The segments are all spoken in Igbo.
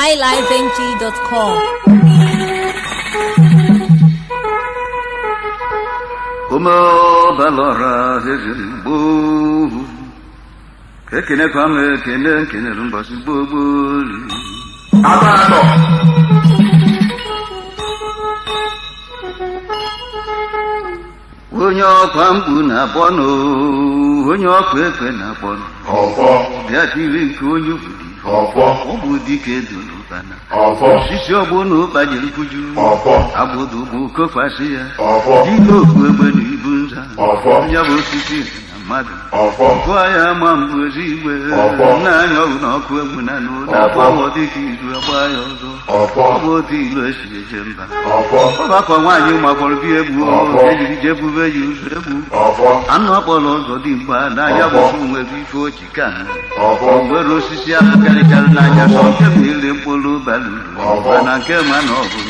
highlifeng.com. Umo balora zezin bu. Kekine kwame kene kene rumbasi bu bu. Abado. Onye ọkwa mkpu na-akpọ n'oo, onye ọkwa ekwe na-akpọ n'oo. ọfọ bịa tiri nke onye obodo ọfọ ọ bụ dike dụrụ ụkpana ọfọ osisi ụba ụkpanyere kuju ọfọ agbụdụ bụ kokpasị ya ọfọ dị okpu egbe na ibu nza ọfọ ya bụ osisi mmadụ ọgụ ahịa ama mbụzi igwe n'anya ọgụ na ọkụ egwu na n'ụlọ dịka izu agba ya ọzọ e ọ bụ otu ilu esi eje mba ọgbakọ nwaanyị magbọrọ bi egwu ejiri je bube ya ụzọ egbu anụ akpọrọ ụzọ dị mgba n'anya bụzi nwere ife oji ka ha osisi ahụ karịkarị n'anya sọ nke ma ile mkpụrụ bara uru na nke ma na ọ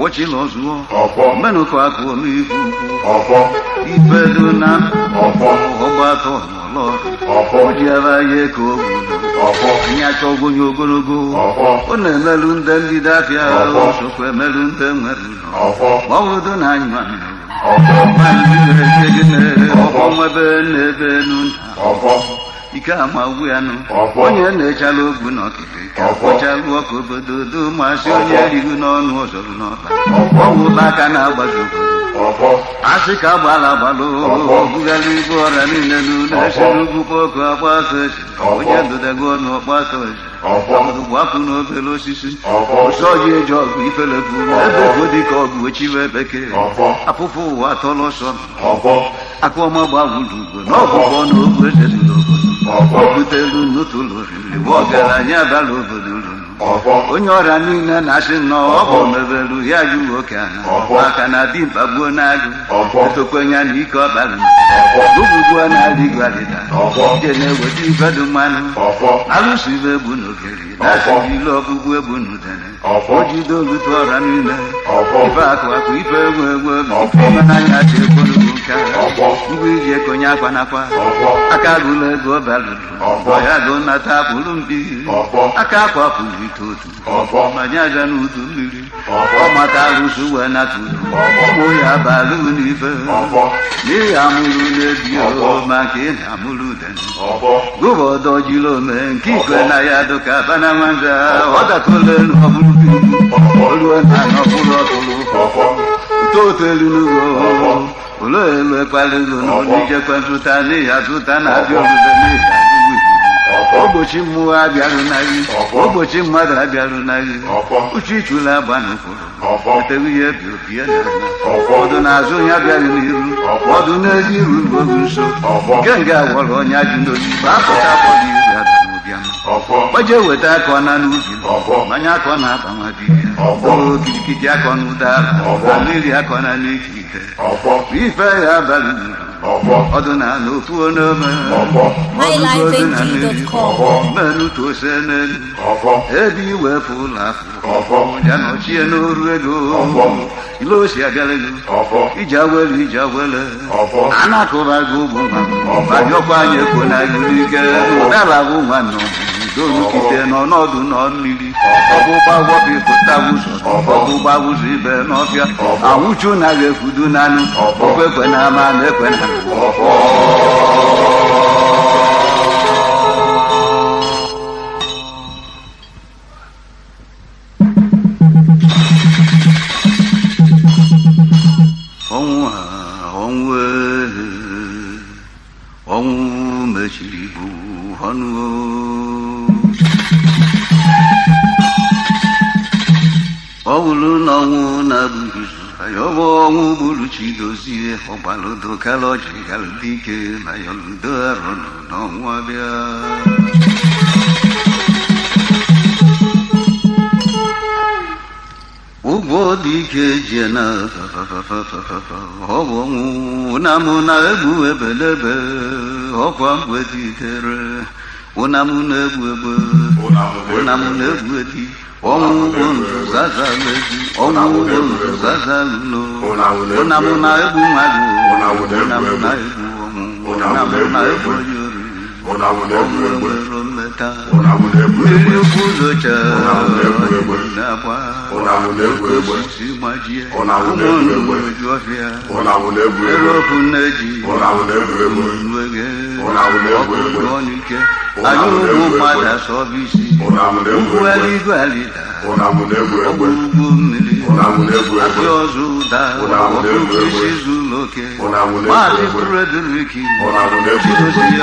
wọ́chí lọ zùọ́. ọ̀pọ̀. mẹ́nu kọ́ akọ omi ikú. ọ̀pọ̀. ìfẹ́ dúnà. ọ̀pọ̀. ọgbà tọ̀ lọ. ọ̀pọ̀. ojú ara yẹ kó gbọdọ̀. ọ̀pọ̀. ìyá tọ́ gbóyè ogologo. ọ̀pọ̀. ó nà emelu ndé ndị dafịa. ọ̀pọ̀. sokwa emelu ndé nwere ụlọ. ọ̀pọ̀. ọwụ dụnà anyụ anyụ. ọ̀pọ̀. mmadụ dị n'ebe n'ebe ọ̀pọ̀ nwebe n'ebe nụ. ọ̀pọ̀. ike ama ogbu ya nụ onye na-echala ogbu n'ọkịta ọkpọchalụ ọkụ obodo do masị onye erigo n'ọnụ ọzọrụ n'ọta ọgwụ aka na-agbazi obodo asị ka agbala agbalụ bugara ibu ọrịa niile n'ụlọ esi n'ugwu kpọkụ agbasa esi onye dodago ọnụ ọgbasa esi gwapụ n'obere osisi ụsọ ji eji ọgụ ifere bụ ebe bụ dị ka ọgụ ochiwe bekee apụpụ ụwa tọrọ sọ akụọma gbawuru ugwe n'ọgwụgwọ na ogwu butelu n'utulu ọgaranya bala obodo onye ọrịa niile na-asị nnọọ ọ bụ mebelu ya ju nwoke ahụ maka na dimkpa mkpagbuo na-agụ etokwenya na ike ọbara ụbụgbuo na-adịghị adịda na-eweta ibedu mmanụ alụsụ ibe egbu niile ife egwu egwu nka ngwa iji ekonye akwa nakwa aka agụla ego balụrụ ọya gụ nata pụrụ mpi aka akwa pụrụ ite otu manye aja na udu mmiri ọmata arụsị wee nata udu ụmụ ya balụ n'ife n'ihi amụrụ na ma nke ị amụrụ udene gụba ọdọ jiri ome nke ikwe na ya dụka bana nwanza ọ dakọla elu ọbụrụ olu na anọbụrụ ọtụrụ totelunugo ụtọ elu oníjẹpẹtùtà ní àtúntà náà abíọlùdẹ ní ìdádúgbò ogbochi mmụọ abịarụ n'agị ogbochi mmadụ abịarụ n'agị uche ichula abanụ kwuru eteghị ya bi obi ya na azụ onye bịara n'iru ọdụ n'ezi iru n'oge nso nke nga gwọrọ onye ajụ n'obi bapụta akpọghị iru ya bịara n'obi ama gbaje weta akọ na n'ubi mmanya akọ na-aba bibi o kìjìkìjì akọni ụdara mmiri akọna n'ikike. ite ife ya abalị ọdụ na ala ofu onome ọgụgụ ọdụ na mmiri mmerụ tu ose n'elu ebe iwe efu ụlọ afọ ya nọchie n'oru ego ile osi abịala ego iji awele iji awele a na-akụba gị ụmụ nwa ma gị anyị ekwo na gị n'ike ụdara bụ nwa nnọọ dolukite nọ n'ọdụ nọ mmiri ọgbụgba gwọbi pụta wụzọ ọgbụgba wụzọ ibe n'ọfịa anwụchu na ga-efudu nanụ okwekwe na ama na ekwe na ọnwụ mechiri bụ ọnụ na Pauluna una bisa yobo mulu chido si hobalo do kalo chigal dike na yolder no wabia Ugo dike jena hobo mu na mu namuna ebu ebelebe hokwa mwe ditere onamnegwebe onamnegwedi ọnwụ ọta erikwu ụzọcha nakwa osisi gbajie ụmụndụ ju ọfịa erọpụ nne ji wege ọkụkụ ọnụ ike anyị ụmụ mmadụ asọbisi ugwu aligo alida ọgbụ ugwu mmiri asị ọzọ ụda ọkụkụ isi oke maazị tureduriki chidozie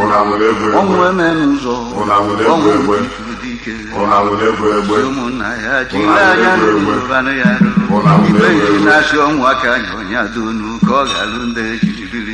onwere m ụzọ onwere ike ụmụnna ya jiri anya n'ụbanụ ya ibe ji na-asị ọnwụ aka anya onye adonu ka ọ ga-alụ ndị ejiribiri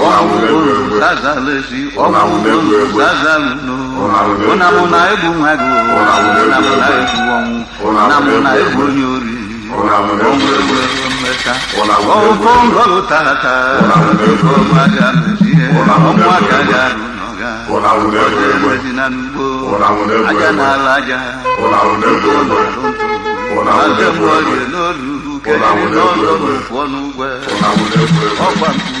zazalesi ọkùnkùn tata ọnụ